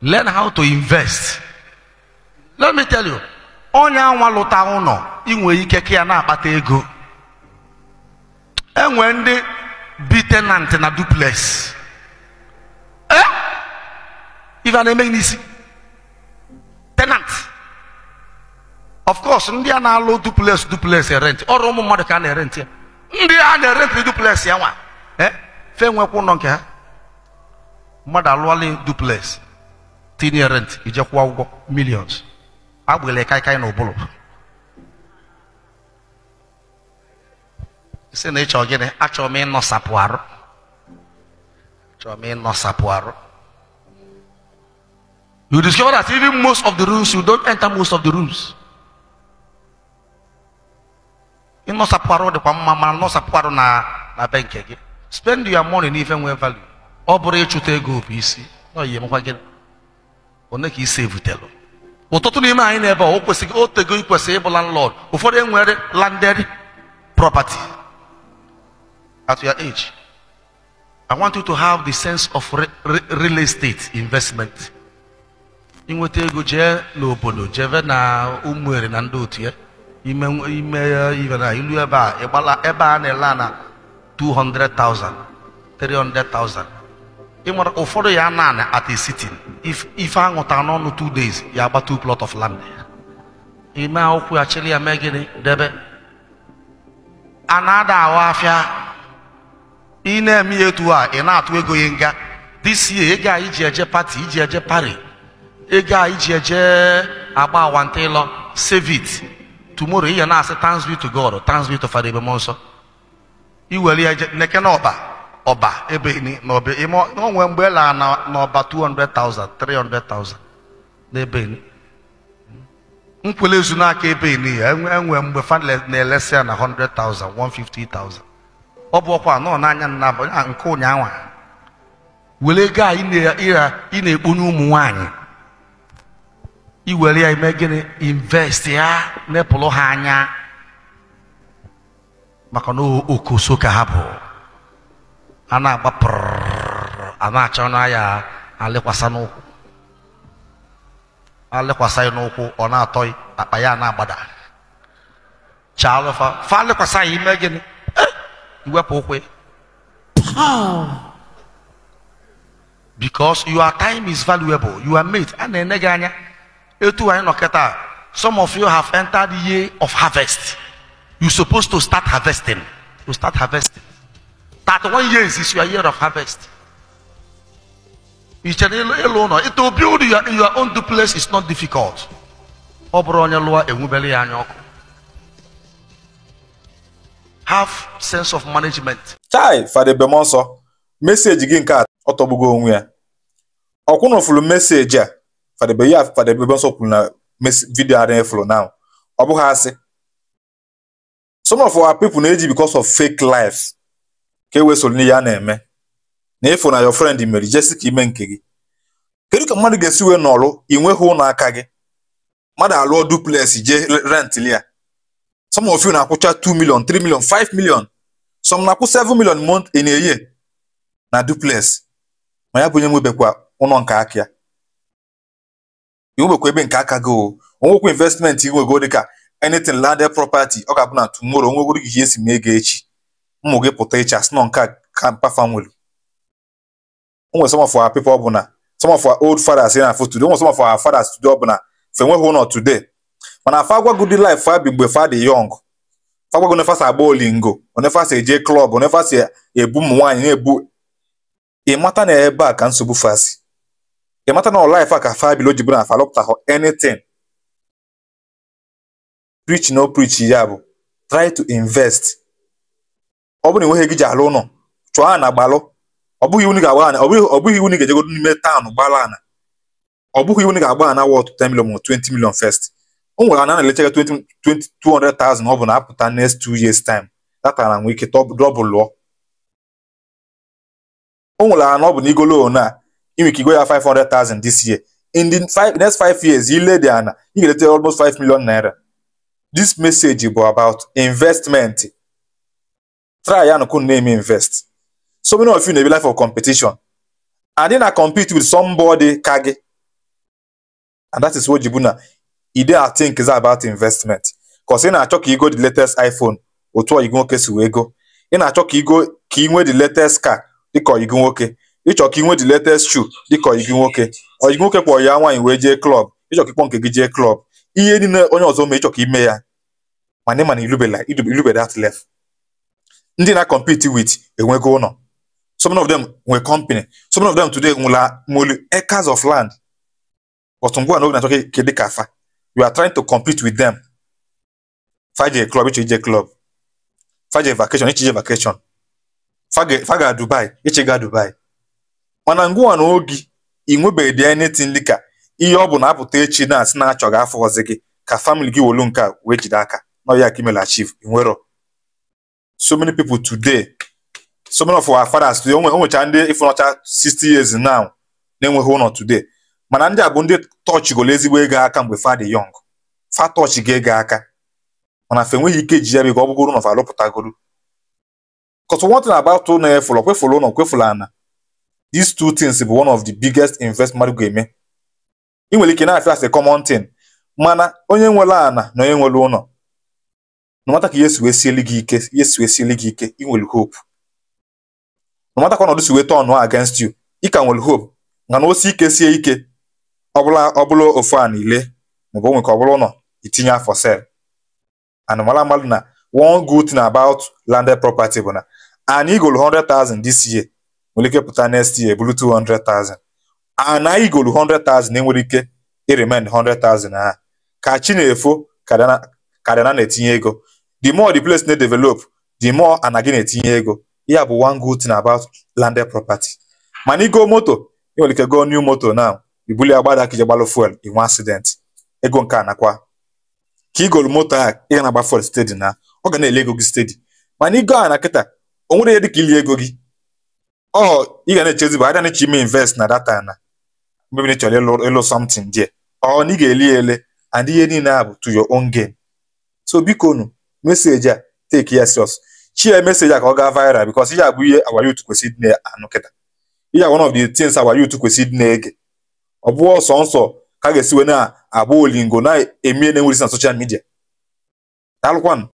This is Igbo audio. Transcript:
learn how to invest let me tell you onye anwa lụta ụlọ inwe ike ka ya na-akpata ego enwe ndị bi tenant na duplex ee ife a na-emeghị n'isi tenant of course ndị a na-alụ duplex duplex e rent ọrụ ụmụ mmadụ ka a na-erent ya ndị a na-erent duplex ya nwa e? fe nwekwa ụlọ nke ha mmadụ alụọla duplex tinye rent ije kwụọ ụgwọ millions agbịla kaikai na ụbụlụ si na ịchọ gịnị achọrọ m ịnọsapụ arụ achọrọ m ịnọsapụ arụ you discover that even most of the rooms you don't enter most of the rooms ịnọsapụ arụ dịkwa mma mana nọsapụ arụ na na be nke gị spend your money n'ife nwee value ọ bụrụ ịchụta ego bụ isi na oyi emekwa gịnị one ka isi evutelu ụtụtụ n'ime anyị n'ebe a o kwesịghị otego ikwesị ịbụla landlord ụfọdụ enwere landed property at your age i want you to have the sense of real estate investment inweta ego jee n'obodo jebe na ụmụere na ndị otu ya ime ime na ilu ebe a ịgbala ebe a na-ele na 200,000 300,000 nwere ụfọdụ ya naanị at a if ife aṅụta n'ọnụ two days ya agba plot of land ime akwụkwọ ya chịrị ya mee gịnị debe a na-ada ahụ afịa ị na-eme etu a ị na-atụ ego ya nga this year ego a iji eje pati iji eje pari ego a iji eje agba awanta ịlọ save it tomorrow ihe na-asị thanks be to God thanks be to Father ebe mmụọ nsọ iwere ya neke ọba ebe onwe mgbe lara n'ọba 200,000 300,000 n'ebe nkwele ezu n'aka ebe ya enwe mgbe fa na-elesi ya na 100,000 150,000 ọ bụ ọkwa nọ n'anya nna nke ụnyaahụ were ego a ị na-ekpunye ụmụ nwanyị iwere ya ime gịnị invest ya nepụrụ ha anya maka na okoso ka ha bụ ana baper ana achọ na ya alekwasa n'ụkwụ alekwasa ya ona toy ọ na-atọ akpa ya na-agbada chaalụfa fa alekwasa ya ime eh, because your time is valuable you are made a na-ene etu anyị nọ some of you have entered the year of harvest you supposed to start harvesting to start harvesting one years is your year of harvest. E you can alone. It will build your, your own duplex is not difficult. Ọ bụrụ onye lụọ enwubele ya anya ọkụ. Have sense of management. Chai Fada Bemonso, message gị nke a ọ tọgbugo onwe ya. Ọkwụna ofulu meseji a Fada Be ya Fada Bemonso kwuru na vidiyo adịghị fụrụ now. Ọ bụghị asị. Some of our people na-eji because of fake life. ka e wee n'ihe a na-eme na ịfụ na your friend mere jesi ka ime nke gị kedu ka mmadụ ga-esi wee nọrụ ị nweghị ụlọ aka gị mmadụ alụọ duplex jee rentili ya some na-akwụcha 2 million 3 million 5 million some na-akwụ 7 million mont in eye na duplex ma ya bụ onye nwebekwa ụlọ nke aka ya ebe nke aka gị o onwekwa investment inwego dịka anything lande property ọ ga-abụ na tomorrow onwegoro gị ihe esi mee ego echi ụmụ gị pụta iche asị nọ nke a ka pafam nwere onwe some of ọ bụ na some of our old fathers here na for today onwe some of our fathers tude ọ bụ na fe nweghị ụlọ today mana afa agwago dị life fa bi mgbe fa dị yọng fa agwago nefasa agba olingo onefasa eje klọb onefasa ebu ụmụ nwaanyị na-ebu ịmata na ebe a ka nsogbu fasi ịmata na ọlaif a ka fa bilo bụ na falọpụta hụ anything preach no preach ya bụ try to invest ọ bụrụ na enweghị gị ji alụ ụlọ chụọ ana gbalụ ọ bụghị iwu ga-agba ana ọ bụghị ọ bụghị iwu ga-ejego n'ime taụnụ gbala ana ọ bụghị iwu ga-agba ana wọt 10 million ma 20 million first o nwere ana na-elechega 20 200,000 ọ bụ na apụta next two years time data na nwee ike dọbụ lụọ o nwere ana ọ bụ na igolo na inwe ike igo ya 500,000 this year in the five, next five years ile dị ana ị ga-eleta almost 5 million naira this message bụ about investment try and na name invest so many of you na be life of competition and then i compete with somebody kage and that is what na e dey i think about investment because ị na-achọ ka igo the latest iphone otu oyigo nwoke si wee go ị na-achọ ka igo ka inwe the latest car dịka oyigo nwoke ịchọ ka inwe the latest shoe dịka oyigo nwoke oyigo oke kpọrọ ya nwaanyị wee jee klọb ịchọ ka ịkpọ nke gị jee klọb ihe niile onye ọzọ mee ịchọ ka ime ya mana irube that ndị na-compete with enwego ụlọ some of them nwe company some of them today nwela molu acres of land but ngwa na oge na-achọ ka dị ka afa you are trying to compete with them faje club iche ije club faje vacation iche ije vacation faga dubai iche ga dubai mana ngwa na oge ị nwebeghị anything dị ka ihe ọ bụ na-apụta echi na-asị na achọghị afọ ọzọ gị ka gị wolu nke a wee jide aka na ka imela nwero so many people today so many of our fathers today o nwecha ndị ịfụnọcha 60 years now na-enweghị ụlọ today mana ndị a bụ ndị tọchị golo ezigbo ego aka mgbe fa dị yọng fa tọchị ga ego aka mana fa enweghị ike ji ya biko ọ bụgoro ụlọ fa alụpụtagoro kọtụ wọntị na-agbatụ ụlọ efụlọ kwefụlụ ụlọ kwefụlụ ana these two things bụ one of the biggest investment mmadụ eme ị nwere ike na-afịa as a common thing mana onye nwere ana na onye nwere ụlọ nọmata ka yesu si wee sieli gị ike yesu si wee sieli gị ike ị nwere hope nọmata ka ọnọdụ si wee tọọnụ against you ị ka nwere hope na na osi ike sie ike ọ bụla ofu a niile maọbụ onwe ka ọ bụla ụlọ itinye afọ sel and mara mmadụ na one good thing about landed property bụ na anyị golu 100,000 this year nwere ike pụta next year bụrụ 200,000 and anyị golu 100,000 enwere ike i e remain 100,000 ha ka chi na-efo ka na-etinye ego the more the place na develop the more a na gị na-etinye ego ya bụ one good thing about landed property mana igo moto ị nwere ike go new moto na ibuli agbada ka ije gbalụ fuel inwe accident ego nke a nakwa ka igolu moto a ị ga na-agba fuel steady na ọ ga na-ele ego gị steady mana igo a na kịta o nwere ihe dịka ili ego gị ọ ị ga na-echezi bụ ada na-eche ime invest na data na mmebi chọrọ ịlụ ịlụ something there ọ na ị ga-eli ele and ihe niile a bụ to your own game so biko nu meseji a teki ya chi ya meseji a ka ọ gaa viral bikos ihe a bụ ihe our youth kwesịrị dị na-anụ kịta ihe one of the things our youth kwesịrị dị na-ege ọ bụ ọsọ nsọ ka a ga-esiwe na-agba olingo na-emie na-enwerisi na social media daalụkwanụ